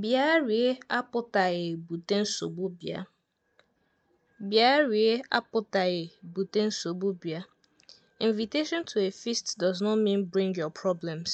Bịa rie apụtaghị bute nsogbu bịa. Bịa rie apụtaghị bute nsogbu bịa. Invitation to a feast does not mean bring your problems.